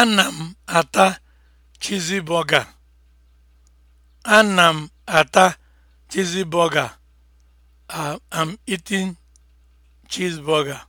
Ana m ata chizibọga. burger m ata chizibọga. I am eating cheeseburger.